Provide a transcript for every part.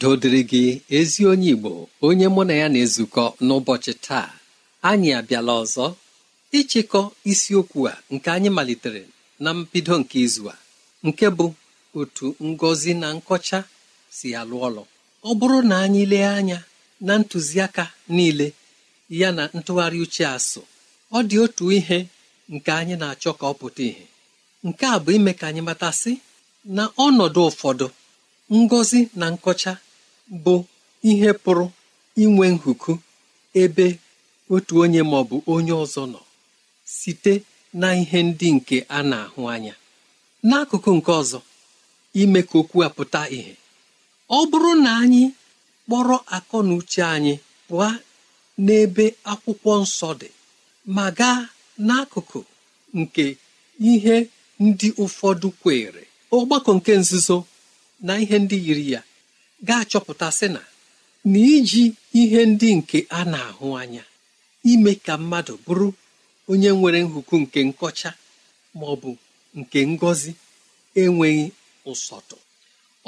udo dịrị gị ezi onye igbo onye mụ na ya na-ezukọ n'ụbọchị taa anyị abịala ọzọ ịchịkọ isiokwu a nke anyị malitere na mbido nke izu a nke bụ otu ngozi na nkọcha si alụ ọlụ ọ bụrụ na anyị lee anya na ntụziaka niile ya na ntụgharị uche asụ ọ dị otu ihe nke anyị na-achọ ka ọ pụta ìhè nke a bụ ime ka anyị matasị na ọnọdụ ụfọdụ ngọzi na nkọcha bụ ihe pụrụ inwe nhuku ebe otu onye ma ọ bụ onye ọzọ nọ site na ihe ndị nke a na-ahụ anya n'akụkụ nke ọzọ ime ka okwu a pụta ìhè ọ bụrụ na anyị kpọrọ akọ na uche anyị pụọ n'ebe akwụkwọ nsọ dị ma gaa n'akụkụ nke ihe ndị ụfọdụ kwere ọgbakọ nke nzuzo na ihe ndị yiri ya ga-achọpụta sị na na iji ihe ndị nke a na-ahụ anya ime ka mmadụ bụrụ onye nwere nhuku nke nkọcha ma ọ bụ nke ngọzi enweghị ụsọtụ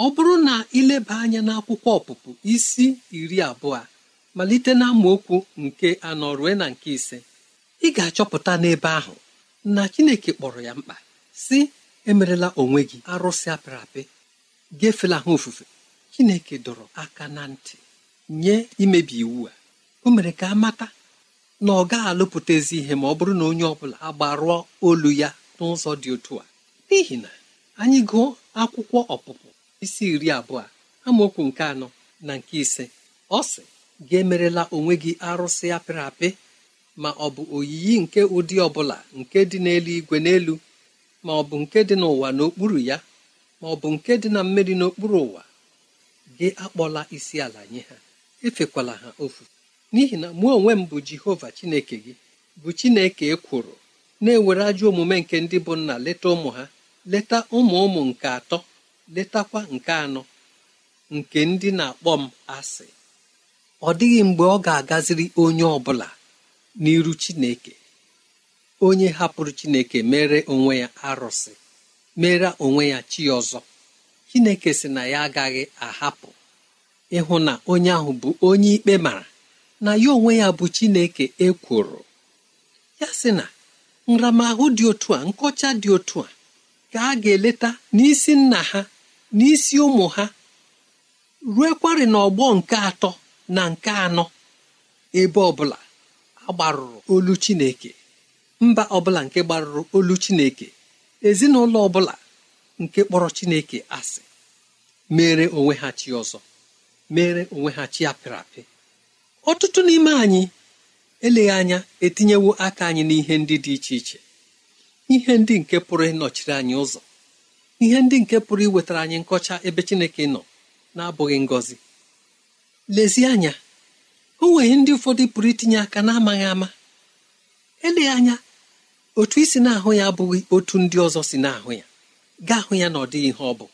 ọ bụrụ na ịleba anya n'akwụkwọ ọpụpụ isi iri abụọ malite na amaokwu nke anọ rue na nke ise ị ga-achọpụta n'ebe ahụ na Chineke kpọrọ ya mkpa si emerela onwe gị arụsị apịrị apị gefela ha ofufe chineke dọrọ aka na ntị nye imebi iwu a o mere ka a mata na ọ gaghị alụpụtazi ihe ma ọ bụrụ na onye ọbụla agbarụọ olu ya n'ụzọ dị otu a n'ihi na anyị gụọ akwụkwọ ọpụpụ isi iri abụọ amaokwu nke anọ na nke ise ọ sị gị emerela onwe gị arụsị apịrị apị ma ọ bụ oyiyi nke ụdị ọbụla nke dị n'eluigwe n'elu ma ọ bụ nke dị n'ụwa n'okpuru ya ma ọ bụ nke dị na mmiri n'okpuru ụwa gị akpọla isi ala nye ha efekwala ha ofu n'ihi na mụ onwe m bụ jehova chineke gị bụ chineke ekworo na-ewere ajọ omume nke ndị bụ nna leta ụmụ ha leta ụmụ ụmụ nke atọ letakwa nke anọ nke ndị na-akpọ m asị ọ dịghị mgbe ọ ga-agaziri onye ọ bụla n'iru chineke onye hapụrụ chineke mere onwe ya arụsị mere onwe ya chi ọzọ chineke si na ya agaghị ahapụ ịhụ na onye ahụ bụ onye ikpe mara na ya onwe ya bụ chineke ekworo ya sị na nramahụ dị otu a nkọcha dị otu a ka a ga-eleta n'isi nna ha n'isi ụmụ ha ruekwarị n'ọgbọ nke atọ na nke anọ ebe ọbụla agbarụrụ olu chineke mba ọbụla nke gbarụrụ olu chineke ezinụlọ ọbụla nke kpọrọ chineke asị mere onwe ha chi ọzọ mere onwe ha chi apịrị apị ọtụtụ n'ime anyị eleghị anya etinyewo aka anyị n'ihe ndị dị iche iche ihe ndị nke pụrụ ịnọchiri anyị ụzọ ihe ndị nke pụrụ iwetara anyị nkọcha ebe chineke nọ na-abụghị ngọzi lezie anya o nwere ndị ụfọdụ pụrụ itinye aka na-amaghị ama eleghị anya otu isi na-ahụ ya abụghị otu ndị ọzọ si na-ahụ ya gaa hụ ya na ọ dịghị ihe ọ bụ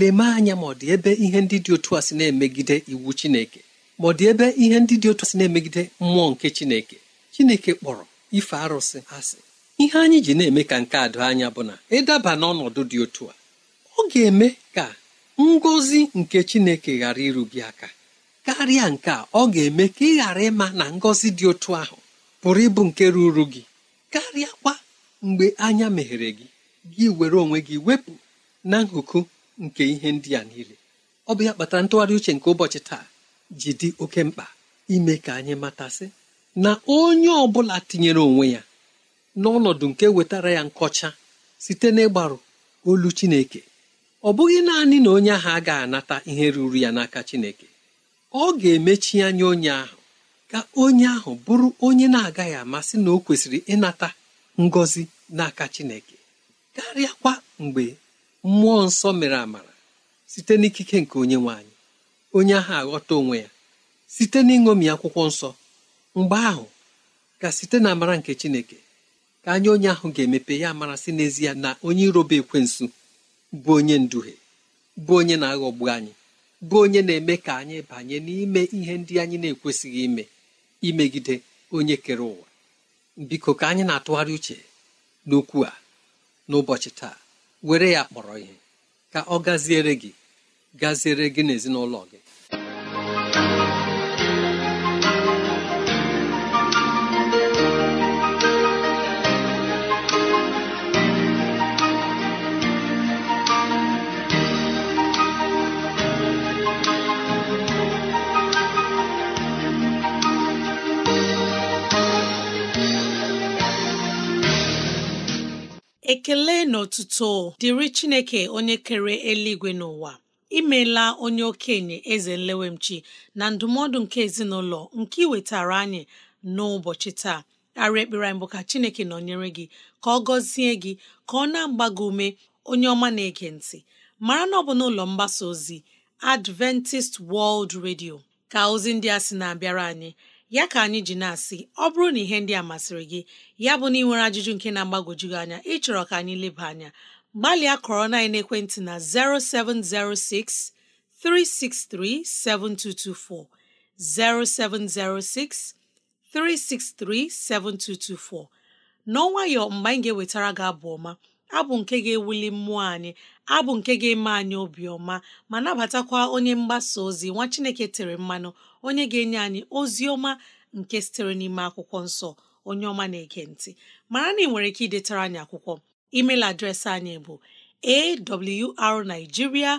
leme anya ma ọ dị ebe ihe ndị dị otu a si na-emegide iwu chineke ma ọ dị ebe ihe ndị dị otu a si na-emegide mmụọ nke chineke chineke kpọrọ ife arụsị asị ihe anyị ji na-eme ka nke adụ anya bụ na ịdaba n'ọnọdụ dị otu a ọ ga-eme ka ngozi nke chineke ghara irubie aka karịa nke a ọ ga-eme ka ị ghara ịma na ngozi dị otu ahụ pụrụ ịbụ nke ruru gị karịa kwa mgbe anya meghere gị gị were onwe gị wepụ na nhụkụ nke ihe ndị a niile ọ bụ ya kpatara ntụgharị uche nke ụbọchị taa ji dị oke mkpa ime ka anyị matasị na onye ọ bụla tinyere onwe ya n'ọnọdụ nke wetara ya nkọcha site n'ịgbarụ olu chineke ọ bụghị naanị na onye ahụ agaghị anata ihe ruru ya n'aka chineke ọ ga-emechi anya onye ahụ ka onye ahụ bụrụ onye na-agaghị amasị na o kwesịrị ịnata ngọzi n'aka chineke karịakwa mgbe mmụọ nsọ mere amara site n'ikike nke onye nwe anyị onye ahụ aghọta onwe ya site n'ịṅomi akwụkwọ nsọ mgbe ahụ ka site na amara nke chineke ka anya onye ahụ ga-emepe ya mara si n'ezie na onye iroba ekwensu bụ onye nduhie bụ onye na-aghọgbu anyị bụ onye na-eme ka anyị banye n'ime ihe ndị anyị na-ekwesịghị ime imegide onye kere ụwa biko ka anyị na-atụgharị uche n'okwu a n'ụbọchị taa were ya kpọrọ ihe ka ọ gaziere gị gaziere gị n'ezinụlọ gị ekele na otuto dịrị chineke onye kere eluigwe n'ụwa imela onye okenye eze nlewemchi na ndụmọdụ nke ezinụlọ nke iwetara anyị n'ụbọchị taa arị ekpere mbụ ka chineke nọnyere gị ka ọ gọzie gị ka ọ na-agba ume onye ọma na-ege ntị mara na ọ bụ n'ụlọ mgbasa ozi Adventist World Radio ka ozi ndị a sị na-abịara anyị ya ka anyị ji na-asị ọ bụrụ na ihe ndị a masịrị gị ya bụ na ị nwere ajụjụ nke na-agbagwoju gị anya ịchọrọ ka anyị leba anya gbalịa kọrọ na ekwentị na 0706 363 7224 0706 363 7224 n'ọnwayọ mgbe anyị ga-ewetara gị abụ ọma abụ nke ga-ewuli mmụọ anyị abụ nke ga-eme anyị obiọma ma nabatakwa onye mgbasa ozi nwa Chineke tere mmanụ onye ga-enye anyị ozi ọma nke sitere n'ime akwụkwọ nsọ onye ọma na-ege ntị mara na ị nwere ike idetara anyị akwụkwọ email adreesị anyị bụ awrnigeria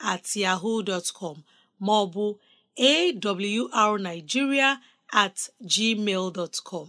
at com at ma ọ at gmail dot com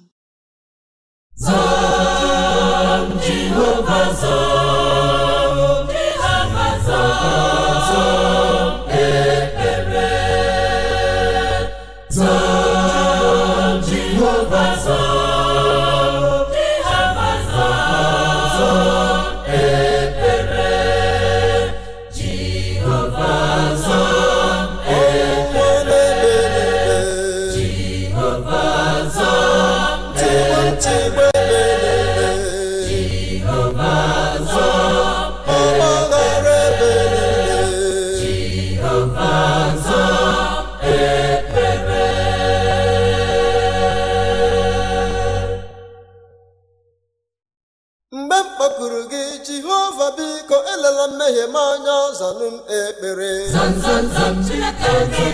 ala mmehie m anya zanụ m ekpere mgbe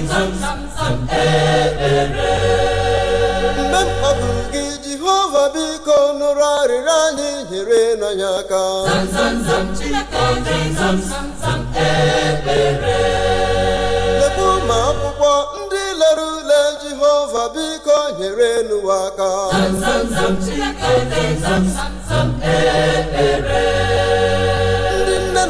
m kpọdụrụ gị jehova biko nụrụ arịrịọ anyị nyere n'anya aka lebu ma akwụkwọ ndị lere ule jehova biko nyere n'ụwa aka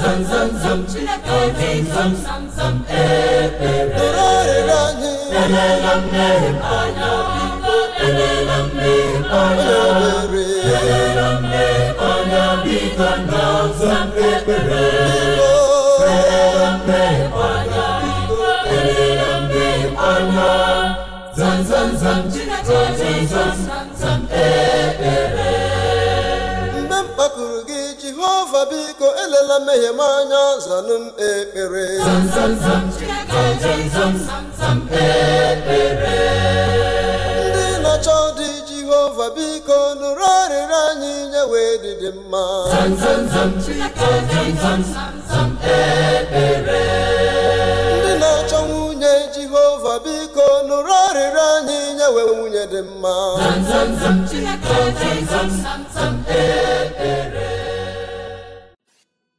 zam zam zam Chineke obi zam zam zam ekpere Elerela mmehie m anya biko Elela mmehie m anya m anya biko Zam zam ekpere Elela mmehie m anya biko Elela mmehie m anya Zam zam zam zam biko elela mmehie m anya zanụ m ekpere ndị na-achọ dị Jehova biko nụrụ arịrị anyị nye wee dị na nwunye Jehova biko nụrụ arịrị anyị nye nwunye dị mma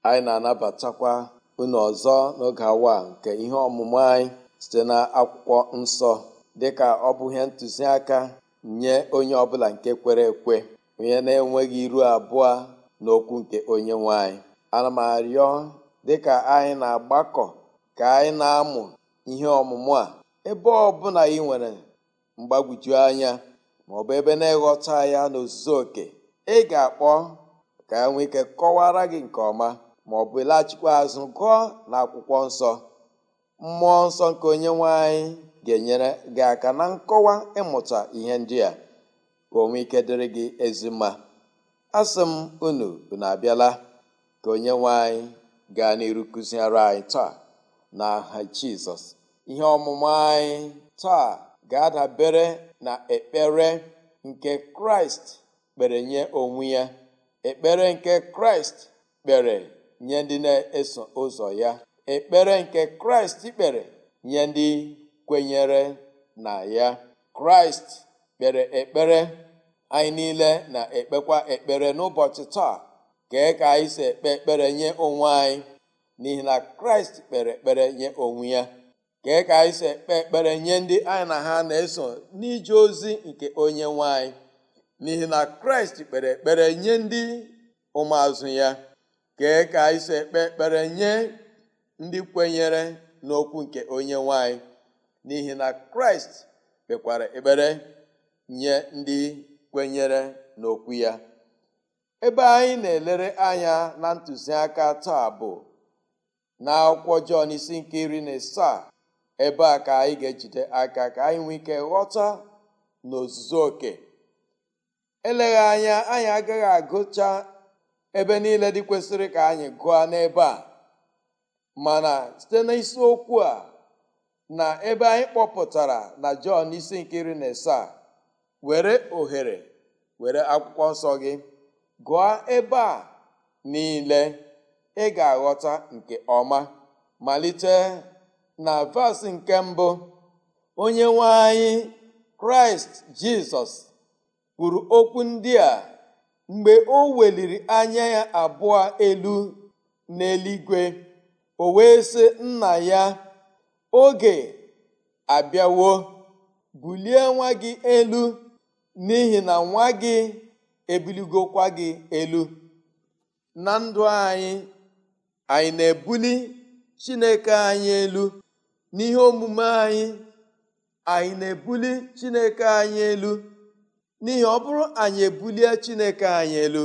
anyị na-anabatakwa unu ọzọ n'oge awa nke ihe ọmụmụ anyị site na akwụkwọ nsọ dịka ọ bụ ihe ntụziaka nye onye ọbụla nke kwere ekwe onye na-enweghị iru abụọ n'okwu nke onye nwanyị. ana m arịọ dịka anyị na-agbakọ ka anyị na-amụ ihe ọmụmụ a ebe ọbụla ị nwere mgbagwoju anya ma ọ bụ ebe na-eghọta ya n'ozuzu oke ị ga-akpọ ka enwe ike kọwara gị nke ọma ma ọ bụ laghachikwa azụ gụọ na akwụkwọ nsọ mmụọ nsọ nke onye nwe anyị ga-enyere gị aka na nkọwa ịmụta ihe ndị a ka onwe ike dịrị gị ezi mma asị m unu na abịala ka onye nwe anyị gaa n'iru kụziere anyị taa na aha jizọs ihe ọmụma anyị taa ga-adabere na ekpere nke kraịst kpere nye onwe ya ekpere nke kraịst kpere nye ndị na-eso ụzọ ya ekpere nke kraịst kpere nye ndị kwenyere na ya kraịst kpere ekpere anyị niile na-ekpekwa ekpere n'ụbọchị taa kee ka anyị si ekpe ekpere nye onwe anyị n'ihi na kraịst kpere ekpere nye onwe ya kee ka anyị si ekpe ekpere nye ndị anyị na ha na-eso n'ije ozi nke onye nwe n'ihi na kraịst kpere ekpere nye ndị ụmụazụ ya kee ka anyị si ekpe ekpere nye ndị kwenyere n'okwu nke onye nwanyị n'ihi na kraịst kpekwara ekpere nye ndị kwenyere n'okwu ya ebe anyị na-elere anya na ntụziaka taa bụ na akwụkwọ jọn isi nke iri na asaa ebe a ka anyị ga-ejide aka ka anyị nwee ike ghọta n'ozuzu oke eleghị anya anyị agaghị agụcha ebe niile dị kwesịrị ka anyị gụọ n'ebe a mana site n'isiokwu a na ebe anyị kpọpụtara na Jọn isi nkiri iri na asaa were ohere were akwụkwọ nsọ gị gụọ ebe a niile ị ga-aghọta nke ọma malite na vas nke mbụ onye nwe anyị kraịst jizọs kwuru okwu ndị a Mgbe o weliri anya ya abụọ elu n'eluigwe, o wee sị nna ya, oge abịawo, bulie nwa gị elu n'ihi na nwa gị ebuligokwa gị elu. Na ndụ anyị, anyị na-ebuli Chineke anyị elu n'ihe omume anyị, anyị na-ebuli Chineke anyị elu n'ihi ọ bụrụ anyị ebulie chineke anyị elu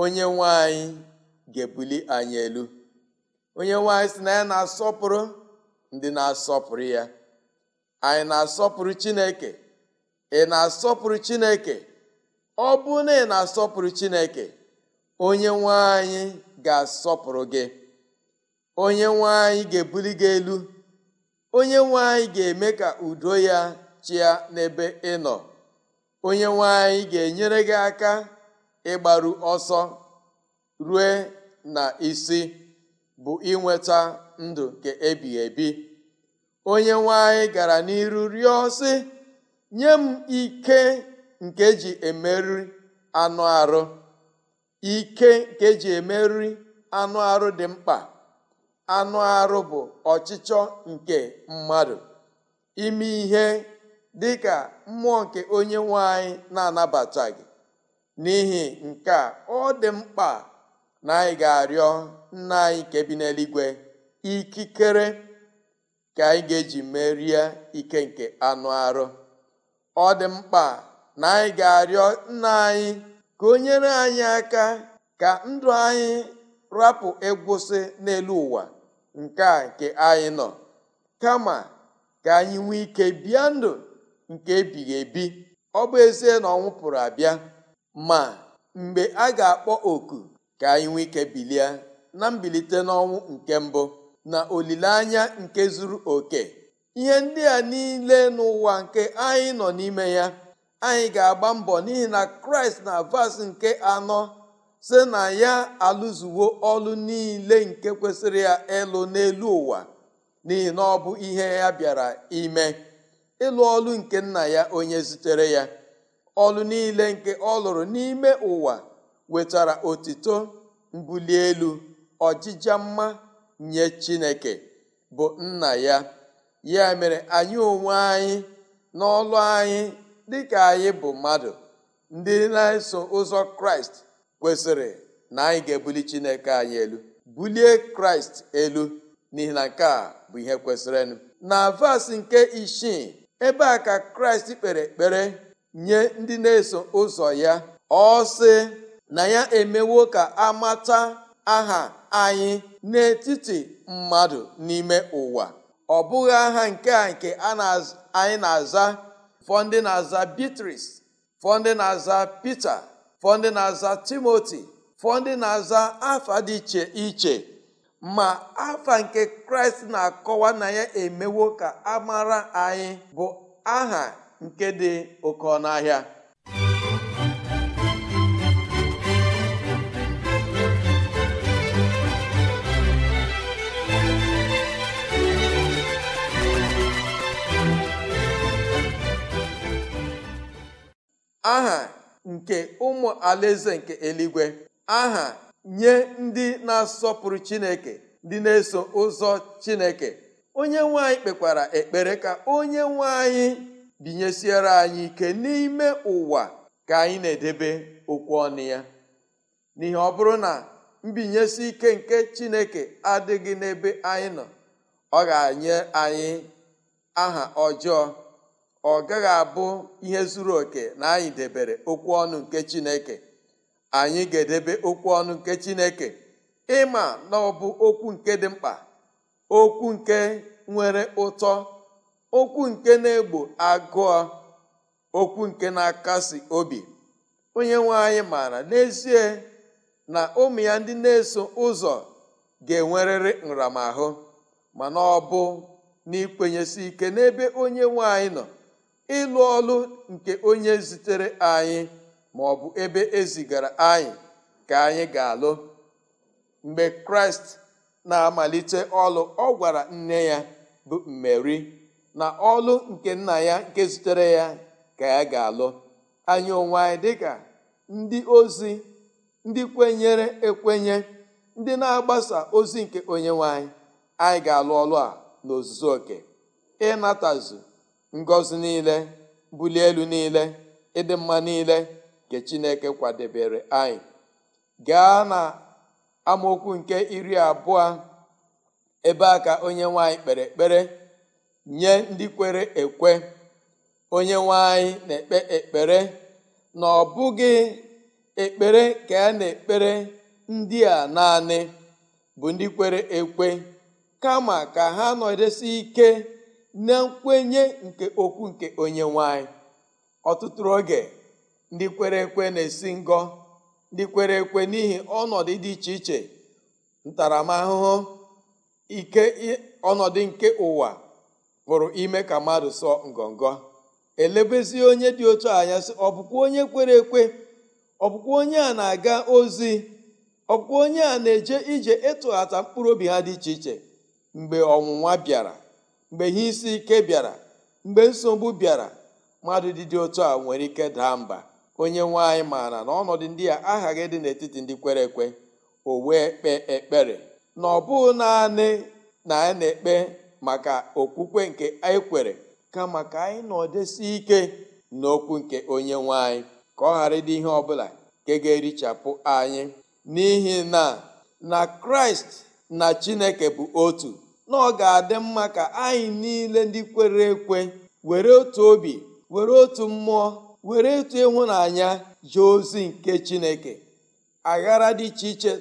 onye nwe anyị ga-ebuli anyị elu onye nwe anyị si na ya na-asọpụrụ ndị na-asọpụrụ ya anyị na-asọpụrụ chineke ị na-asọpụrụ chineke ọ bụ na ị na-asọpụrụ chineke onye nwe anyị ga-asọpụrụ gị onye nwe anyị ga-ebuli gị elu onye nwe anyị ga-eme ka udo ya chịa n'ebe ị nọ onye nwanyị ga-enyere gị aka ịgbaru ọsọ rue na isi bụ inweta ndụ nke ebighị ebi onye nwanyị gara n'iru rịọ sị nye m ike nke ji emeriri anụ arụ ike nke ji emeriri anụ arụ dị mkpa anụ arụ bụ ọchịchọ nke mmadụ ime ihe dị ka mmụọ nke onye nwe anyị na-anabata gị n'ihi nke a ọ dị mkpa na anyị ga-arịọ nna anyị nke bi n'eluigwe ikikere ka anyị ga-eji merie ike nke anụ arụ ọ dị mkpa na anyị ga-arịọ nna anyị ka o nyere anyị aka ka ndụ anyị rapụ egwụsị n'elu ụwa nke a nke anyị nọ kama ka anyị nwee ike bịa ndụ nke ebighị ebi ọ bụ ezie na ọnwụ pụrụ abịa ma mgbe a ga-akpọ oku ka anyị nwee ike bilie na mbilite n'ọnwụ nke mbụ na olileanya nke zuru oke ihe ndị a niile n'ụwa nke anyị nọ n'ime ya anyị ga-agba mbọ n'ihi na kraịst na vas nke anọ si na ya alụzuwo ọlụ niile nke kwesịrị ya ịlụ n'elu ụwa n'ihi na ọ bụ ihe ya bịara ime ịlụ ọlụ nke nna ya onye zutere ya ọlụ niile nke ọ lụrụ n'ime ụwa wetara otito mbuli elu ọjịja mma nye chineke bụ nna ya ya mere anyị onwe anyị n'ọlụ anyị dịka anyị bụ mmadụ ndị na-eso ụzọ kraịst kwesịrị na anyị ga-ebuli chineke anyị elu bulie kraịst elu n'ihi na nke a bụ ihe kwesịrịnụ na vas nke isii ebe a ka kraịst kpere ekpere nye ndị na-eso ụzọ ya ọ sị na ya emewo ka amata aha anyị n'etiti mmadụ n'ime ụwa ọ bụghị aha nke a nke anyị na-aza fọdụ na-aza Beatrice fọdụ na-aza Peter fọdụ na-aza Timoti, fọdụ na-aza afa dị iche iche ma afa nke kraịst na-akọwa na ya emewo ka amara anyị bụ aha nke dị oke ọnụahịa aha nke ụmụ alaeze nke eluigwe aha nye ndị na-asọpụrụ chineke ndị na-eso ụzọ chineke onye nwe kpekwara ekpere ka onye nwe anyị binyesiere anyị ike n'ime ụwa ka anyị na-edebe okwu ọnụ ya n'ihi ọ bụrụ na mbinyesi ike nke chineke adịghị n'ebe anyị nọ ọ ga-anye anyị aha ọjọọ ọ gaghị abụ ihe zuru oke na anyị debere okwu ọnụ nke chineke anyị ga-edebe okwu ọnụ nke Chineke ịma na ọ bụ okwu nke dị mkpa okwu nke nwere ụtọ okwu nke na-egbo agụọ okwu nke na-akasi obi onye nwanyị maara n'ezie na ụmụ ya ndị na-eso ụzọ ga-enwerịrị nramahụ mana ọ bụ n'ikwenyesi ike n'ebe onye nwanyị nọ ịlụ ọlụ nke onye zitere anyị ma ọ bụ ebe ezigara anyị ka anyị ga-alụ mgbe kraịst na-amalite ọlụ ọ gwara nne ya bụ mmeri na ọlụ nke nna ya nke zutere ya ka ya ga-alụ anyị onwe anyị dịka ndị ozi ndị kwenyere ekwenye ndị na-agbasa ozi nke onye nwanyị anyị ga-alụ ọlụ a n'ozuzu oke ịnatazu ngọzi niile bulie elu niile ịdị mma niile nke chineke kwadebere anyị gaa na amaokwu nke iri abụọ ebe a ka onye nwanyị kpere ekpere nye ndị kwere ekwe onye nwanyị na-ekpe ekpere na ọ bụghị ekpere ka a na-ekpere ndị a naanị bụ ndị kwere ekwe kama ka ha nọdesi ike na nkwenye nke okwu nke onye nwanyị ọtụtụ oge ndị kwere ekwe na-esi ngọ ndị kwere ekwe n'ihi ọnọdụ dị iche iche ntaramahụhụ ike ọnọdụ nke ụwa pụrụ ime ka mmadụ sọ ngọngọ elebezi onye dị otu anya sị ọ bụkwa onye kwere ekwe ọ bụkwa onye a na-aga ozi ọ bụkwa onye a na-eje ije ịtụghata mkpụrụ obi ha dị iche iche mgbe ọnwụnwa bịara mgbe ihe isi ike bịara mgbe nsogbu bịara mmadụ dị dị otu a nwere ike daa mba onye nwe anyị maara na ọnọdụ ndị a aghaghị dị n'etiti ndị kwere ekwe o wee kpee ekpere na ọ bụghị naanị na anyị na-ekpe maka okwukwe nke anyị kwere kama ka anyị nọdesi ike n'okwu nke onye nwe anyị ka ọ ghara ịdị ihe ọbụla nke ga-erichapụ anyị n'ihi na na kraịst na chineke bụ otu na ọ ga-adị mma ka anyị niile ndị kwere ekwe were otu obi were otu mmụọ were etu ịhụnanya jee ozi nke chineke aghara dị iche iche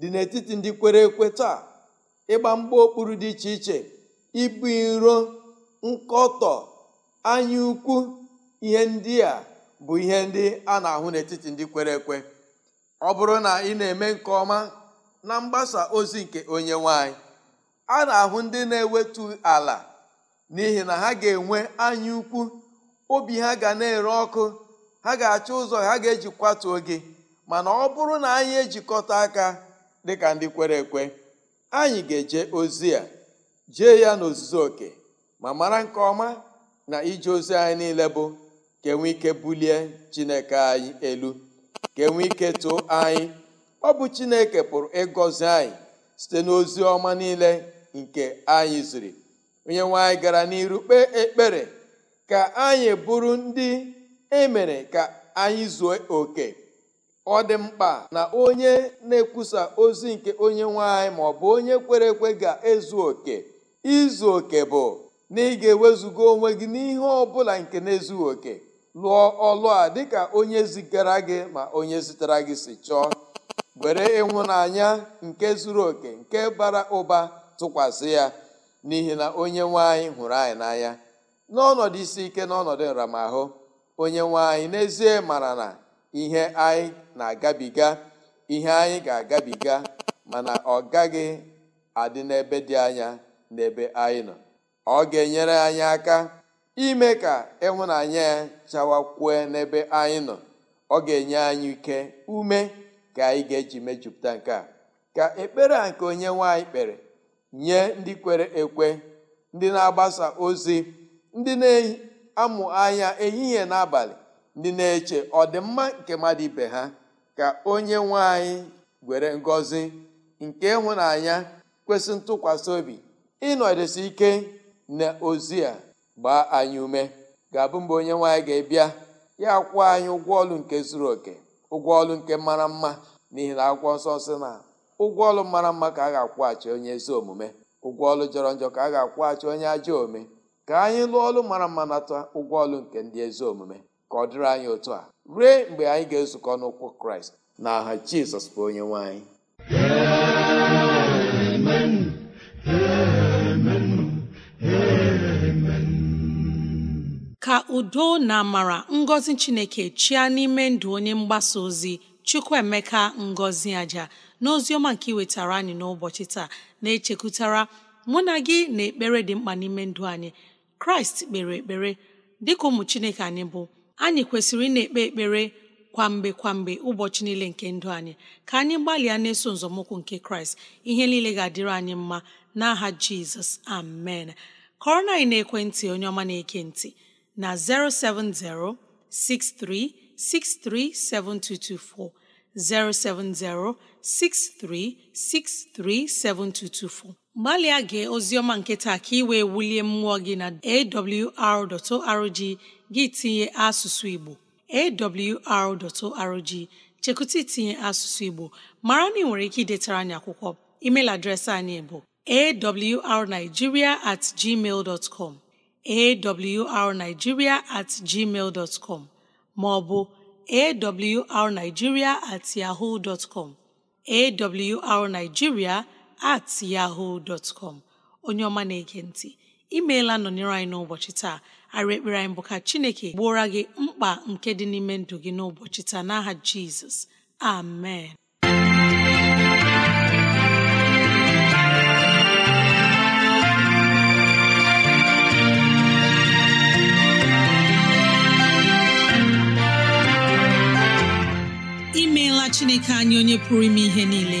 dị n'etiti ndị kwere ekwe taa ịgba mgba okpuru dị iche iche ibu iro nkọtọ anya ukwu ihe ndị a bụ ihe ndị a na-ahụ n'etiti ndị kwere ekwe ọ bụrụ na ị na-eme nke ọma na mgbasa ozi nke onye nwanyị a na-ahụ ndị na-ewetu ala n'ihi na ha ga-enwe anya obi ha ga na-ere ọkụ ha ga-achọ ụzọ ha ga-eji kwatuo gị mana ọ bụrụ na anyị ejikọta aka dịka ndị kwere ekwe anyị ga-eje ozi a jee ya n'ozuzu oke ma mara nke ọma na ije ozi anyị niile bụ ka enwe ike bulie chineke anyị elu ka enwe ike too anyị ọ bụ chineke pụrụ ịgọzi anyị site n'ozi ọma niile nke anyị ziri onye nwe anyị gara n'iru kpee ekpere ka anyị bụrụ ndị e mere ka anyị zuo oke ọ dị mkpa na onye na-ekwusa ozi nke onye nwanyị ma ọ bụ onye kwere ekwe ga-ezu oke izu oke bụ na ị ga-ewezuga onwe gị n'ihe ọ bụla nke na-ezughị oke lụọ ọlụ a dịka onye zigara gị ma onye zitere gị si chọọ were ịhụnanya nke zuru oke nke bara ụba tụkwasị ya n'ihi na onye nwanyị hụrụ anyị n'anya n'ọnọdụ isi ike n'ọnọdụ nramahụ onye nwe anyị n'ezie mara na ihe anyị na-agabiga ihe anyị ga-agabiga mana ọ gaghị adị n'ebe dị anya n'ebe anyị nọ ọ ga-enyere anyị aka ime ka ịhụnanya ya chawakwue n'ebe anyị nọ ọ ga-enye anyị ike ume ka anyị ga-eji mejupụta nke a ka ekpere a nke onye nwanyị kpere nye ndị kwere ekwe ndị na-agbasa ozi ndị na-amụ anya ehihie n'abalị ndị na-eche ọdịmma nke mmadụ ibe ha ka onye nwanyị were ngọzi nke ịhụnanya kwesị ntụkwasị obi ịnọdesi ike na ozi a gbaa anyị ume ga-abụ mgbe onye nwaanyị ga-ebịa ya kwụọ anyị ụgwọ ọlụ nke zuru oke ụgwọ ọlụ nke mara mma n'ihi na akwụkwọ nsọ sị na ụgwọ ọlụ mara mma ka a ga-akwụghachi onye ezi omume ụgwọ ọlụ jọrọ njọ ka a ga-akwụghachi onye ajọ ome ka anyị lụọ ọlụ mara mma nata ụgwọ ọlụ nke ndị ezi omume ka ọ dịrị anyị otu a ruo mgbe anyị ga-ezukọ n'ụkwụ kraịst na aha jizọs bụ onye nwanyị. ka udo na amara ngọzi chineke chịa n'ime ndụ onye mgbasa ozi chukwuemeka ngọzi aja n'ozi ọma nke iwetara anyị n'ụbọchị taa na-echekwutara mụ na gị na ekpere dị mkpa n'ime ndụ anyị kraịst kpere ekpere dịka ụmụ chineke anyị bụ anyị kwesịrị ị ekpe ekpere kwamgbe kwamgbe ụbọchị niile nke ndụ anyị ka anyị gbalịa na-eso nzọmụkwụ nke kraịst ihe niile ga-adịrị anyị mma n'aha jizọs amen kọrọ na anyị na-ekwentị onye ọma na-eke ntị na 070 6363 7224 070 6363 7224 gbalịa gee ọma nke taa ka ị wee wulie mmụọ gị na awr.org gị tinye asụsụ Igbo awr.org chekụta itinye asụsụ Igbo mara na ị nwere ike idetara anyị akwụkwọ email adreesị anyị bụ awrnigeria at gmail dot com awrnigeria at com maọbụ awrnigeria at yahoo dot com at yahoo dot com onye ọma na-ege ntị imeela nọnyere anyị n'ụbọchị taa ara ekpere anyị bụ ka chineke gbuora gị mkpa nke dị n'ime ndụ gị n'ụbọchị taa n'aha jizọs amen imeela chineke anyị onye pụrụ ime ihe niile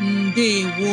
ndewo